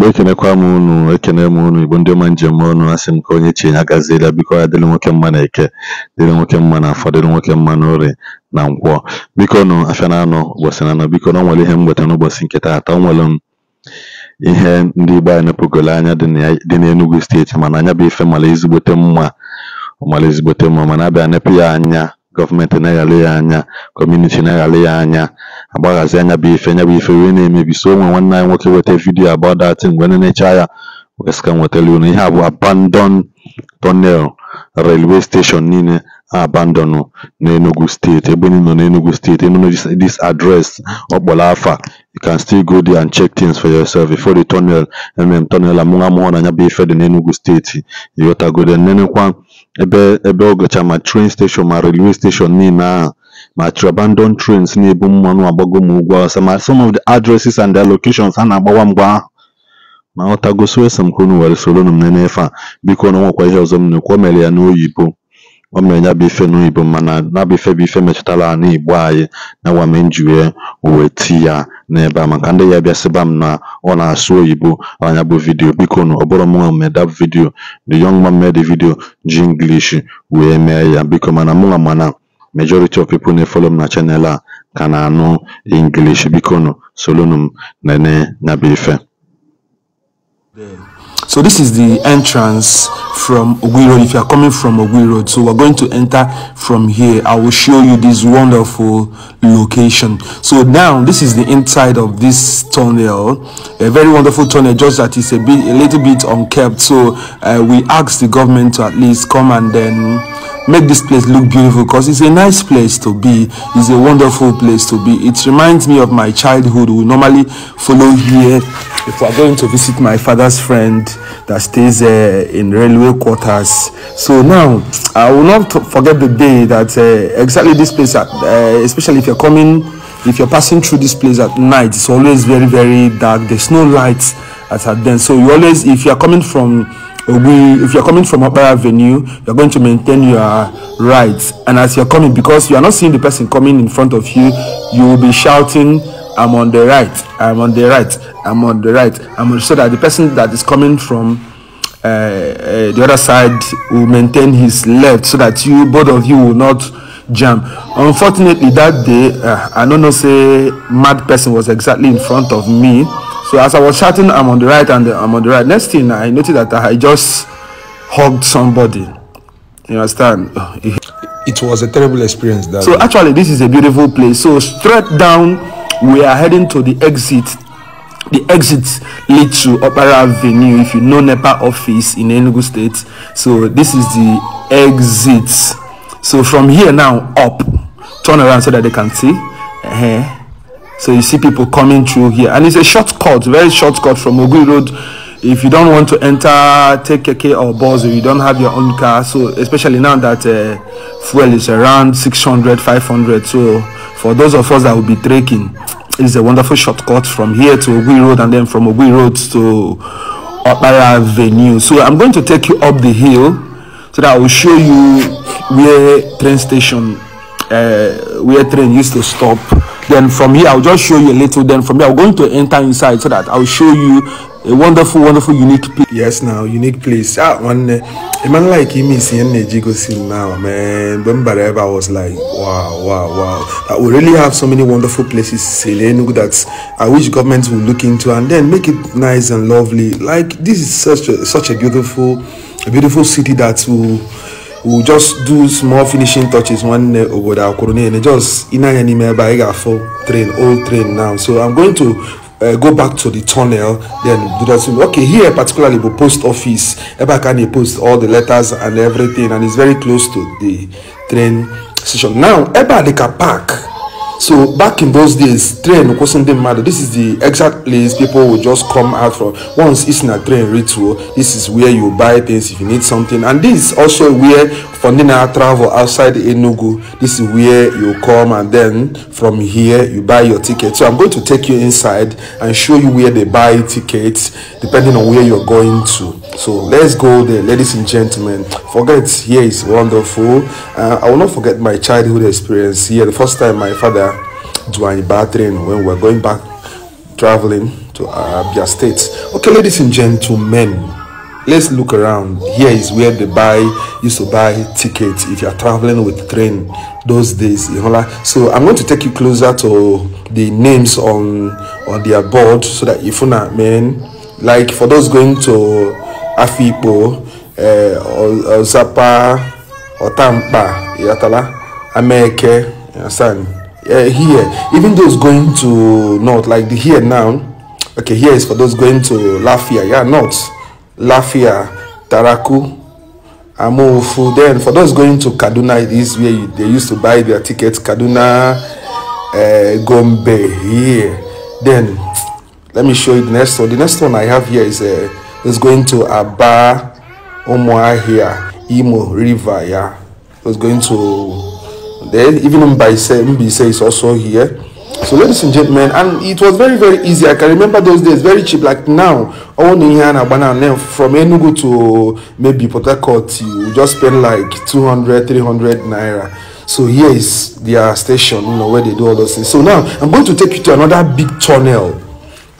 Igbo ekenekwa m unu, ekene m unu, Igbo ndị ọma njem unu, asị m ka onye chi ya biko ya dịrị nwoke mma n'Eke, dịrị nwoke mma n'Afọ, dịrị nwoke mma ori na Nkwọ. na anọ ụbọchị naanụ, bikonu o nwere ihe m nwetara n'ụbọchị nke taata, o nwere ihe ndị Igbo anyị nepugolu anya dị na enugu steeti mana anya bụ ife mara ezigbote mma, ọ ezigbote mma mana abịa bịa ya anya gọọmenti na-aghara ya anya kọmuniti na-aghara ya anya agbaghazi anya bụ ife nya bụ ife wee na-emebi so onwe nwanne anyị nwoke weta vidiyo about that mgbe na nenecha ya weska nwetara unu ihe a abandon tunnel railway station niile abandon n'Enugu steeti ebe nọ n'Enugu steeti ị dis adres, address ọkpọrọ afa you can still go there and check things for yourself before the tunnel mm tunnel amụrụ amụrụ na ya bụ ife dị n'Enugu steeti yotagode nenekwa Ebe Ọgọcha ma tren station ma railway station niile ahụ ma abandon trens na-ebu mmanụ agbago m ugwu awụsa ma some of the addresses and their locations ha na-agbawa mgbe ahụ ọ aghọtago so ese m unu were soronụ m nene ife a, bikonu o nwekwa ihe ọzọ m na-ekwu, o mere ya n'oyibo o mere ya bụ ife n'oyibo mana ya bụ ife bụ ife metụtara anị Igbo anyị na mere m uwe ti tii ya n'ebe a maka ndị ya bịa sịba m na ọ na-asụ oyibo na bụ vidiyo bikonu ọ bụrọ mụnwa mee vidiyo the young man made the ji English wee mee ya biko mana mụnwa mana majority of people na-efolo m na chanel a ka na-anụ English bikonu solonu m nene nya bụ ife So this is the entrance from Ogui Road if you are coming from Ogui Road. So we're going to enter from here. I will show you this wonderful location. So now this is the inside of this tunnel, a very wonderful tunnel, just that it's a bit a little bit unkept. So uh, we asked the government to at least come and then make this place look beautiful because it's a nice place to be it's a wonderful place to be it reminds me of my childhood we normally follow here if we're going to visit my father's friend that stays uh, in railway quarters so now i will not forget the day that uh, exactly this place uh, especially if you're coming if you're passing through this place at night it's always very very dark there's no lights at then so you always if you're coming from we if you're coming from upper avenue you're going to maintain your rights and as you're coming because you are not seeing the person coming in front of you you will be shouting i'm on the right i'm on the right i'm on the right i'm on, so that the person that is coming from uh, uh, the other side will maintain his left so that you both of you will not jam unfortunately that day uh, i don't know say mad person was exactly in front of me So as I was chatting, I'm on the right and I'm on the right. Next thing I noticed that I just hugged somebody. You understand? It was a terrible experience. so actually, this is a beautiful place. So straight down, we are heading to the exit. The exit lead to Opera Avenue. If you know NEPA office in Enugu State, so this is the exit. So from here now up, turn around so that they can see. Uh -huh. So you see people coming through here, and it's a shortcut, very shortcut from Ogui Road. If you don't want to enter, take a K or bus, or you don't have your own car, so especially now that uh, fuel is around 600, 500. So for those of us that will be trekking, it's a wonderful shortcut from here to Ogui Road, and then from Ogui Road to Opera Avenue. So I'm going to take you up the hill, so that I will show you where train station, uh, where train used to stop. Then from here, I'll just show you a little. Then from here, I'm going to enter inside so that I'll show you a wonderful, wonderful, unique place. Yes, now unique place. That ah, one, eh, a man like him is in Jigosin now, man. Remember, I was like, wow, wow, wow. That ah, we really have so many wonderful places Selenu that I wish governments will look into and then make it nice and lovely. Like this is such a such a beautiful, a beautiful city that will we'll just do small finishing touches nwanne obodo akwụrụ niile just ịnanya n'ime ebe anyị ga-afọ train old train now so i'm going to uh, go back to the tunnel then do that thing. okay here particularly the post office ebe aka na-post all the letters and everything and it's very close to the train station now ebe a dịka park so back in those days train kwụsị ndị mmadụ this is the exact place people will just come out from once it's na train ritual oh, this is where you buy things if you need something and this is also where for ndị na-travel outside enugu this is where you come and then from here you buy your ticket so i'm going to take you inside and show you where they buy tickets depending on where you're going to So let's go there, ladies and gentlemen. Forget here is wonderful. Uh, I will not forget my childhood experience here. The first time my father joined bathroom when we were going back traveling to Abia State. Okay, ladies and gentlemen, let's look around. Here is where they buy used to buy tickets if you are traveling with train those days. You know, like, so I'm going to take you closer to the names on on their board so that if you not man like for those going to afikpo ọzapa eh, ọtampa yatala ameke San. here even those going to north like the here now okay here is for those going to lafia yeah north lafia taraku amofu then for those going to kaduna it is where you, they used to buy their tickets kaduna uh, gombe here then let me show you the next one the next one i have here is a uh, eh, is going to Aba Umuahia Imo River. Yeah, it's going to then even Mbaise Mbise is also here. So ladies and gentlemen, and it was very very easy. I can remember those days very cheap. Like now, all in here and Abana and from Enugu to maybe Port Harcourt, you just spend like 200, 300 naira. So here is their station, you know, where they do all those things. So now I'm going to take you to another big tunnel.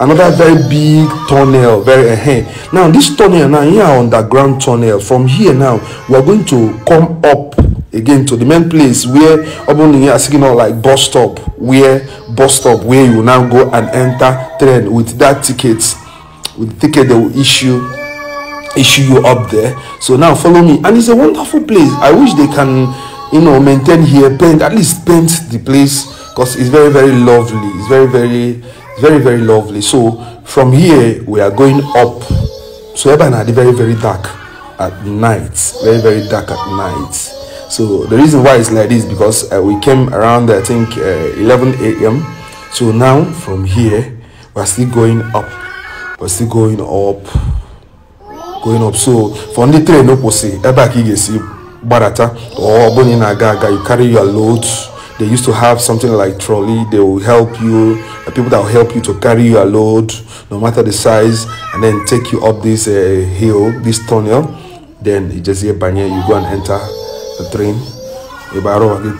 another very big tunnel very uh, now this tunnel now here underground tunnel from here now we are going to come up again to the main place where urban here are not like bus stop where bus stop where you now go and enter train with that ticket with ticket they will issue issue you up there so now follow me and it's a wonderful place i wish they can you know maintain here paint at least paint the place because it's very very lovely it's very very very, very lovely. So from here, we are going up. So Eba Nadi, very, very dark at night. Very, very dark at night. So the reason why it's like this because uh, we came around, I think, uh, 11 a.m. So now from here, we're still going up. We're still going up. going up so for the train, no ebe a ka i barata or oh, gbadata you carry your load they used to have something like trolley they will help you the people that will help you to carry your load no matter the size and then take you up this uh, hill this tunnel then you just hear banya you go and enter the train the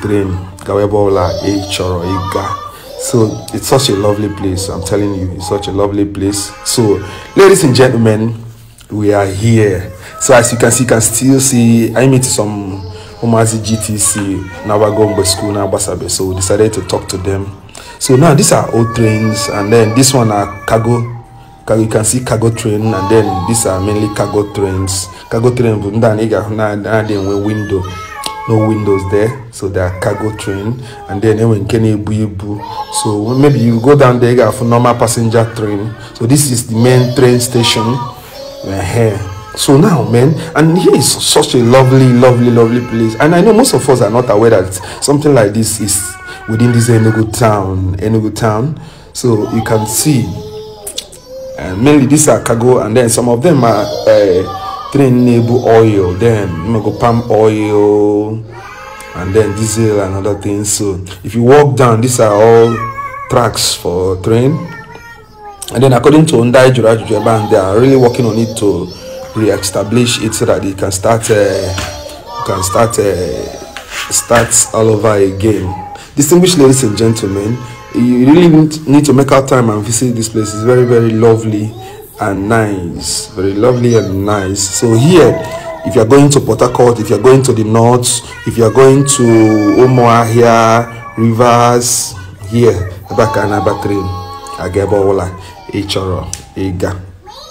train eh, eh, so it's such a lovely place i'm telling you it's such a lovely place so ladies and gentlemen we are here so as you can see you can still see i meet some Umazi GTC, Nawagombe School, Nabasabe. So we decided to talk to them. So now these are old trains, and then this one are cargo. You can see cargo train, and then these are mainly cargo trains. Cargo train, window, no windows there, so that are cargo train. And then when Kenebu, so maybe you go down there for normal passenger train. So this is the main train station. We're here. So now, man, and here is such a lovely, lovely, lovely place. And I know most of us are not aware that something like this is within this Enugu town, Enugu town. So you can see, and uh, mainly these are cargo, and then some of them are uh, Nebu oil, then go palm oil, and then diesel and other things. So if you walk down, these are all tracks for train. And then according to Undai Jura Jujeba, they are really working on it to re-establish it so that it can start uh, can start uh, all over again. Distinguished ladies and gentlemen, you really need to make out time and visit this place. It's very very lovely and nice, very lovely and nice. So here. If you are going to Port Harcourt, if you are going to the north, if you are going to here, Rivers, here, Abaka and Abatrim, Agebola, Echoro, Ega.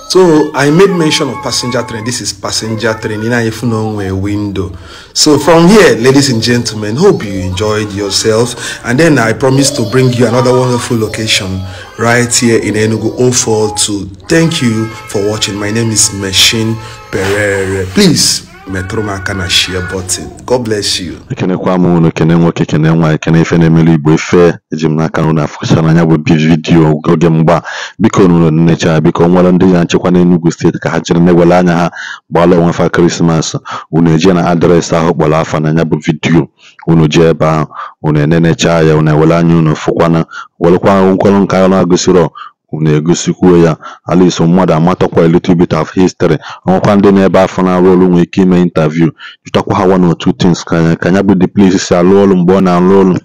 So I made mention of passenger train. This is passenger train in a window. So from here, ladies and gentlemen, hope you enjoyed yourself. And then I promise to bring you another wonderful location right here in Enugu 042. Thank you for watching. My name is Machine Pereira. Please metụrụ m aka na share bọtịn. god bless you ekenekwa m unu kene nwoke kene nwa ekene ife na-emelu igbo efe eji m n'aka unu afụcha n'anya bụ vidio oge mgba biko nụrụ nnecha biko nwere ndị ya nchekwa n'Enugu steeti ka ha chere na-ewele anya ha gbaala onwe fa krismas unu eje na adreesị ahụ kpọrọ afa n'anya bụ vidiyo unu jee ebe ahụ unu enenecha ya unu ewele anya unu fụkwana werekwa nkwọrọ nka na-agụsirọ unu egosikwa ya, at mmadụ amatakwa a little bit of history, onwekwa ndị na ebe afọ na-arụ ọrụ nwere ike ime ịntaviu, jụtakwa ha one or two things ka ya bụ the place si arụ ọrụ, mgbe ọ na-arụ ọrụ.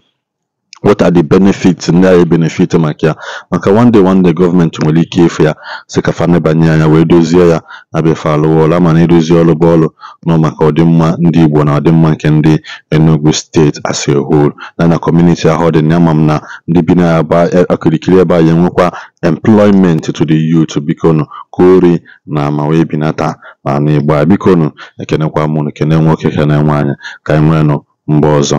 what are the benefits ndị a ga-ebenefit maka ya maka one day one day gọọmenti nwere ike ịfụ ya si kafa fa nebanye anya wee dozie ya na befe alụwa ama na idozi ọlụ bụ ọlụ nọ maka ọdịmma ndị Igbo na ọdịmma nke ndị Enugu steeti as a na na kọmuniti ahụ dị na ama m na ndị bi na e, akirikiri ebe a ya enwekwa employment to the youth bikonu kori na ma wee binata ma na biko bikonu ekenekwa mụnụ kene nwoke kene nwaanyị ka anyị nwee nụ mgbe ọzọ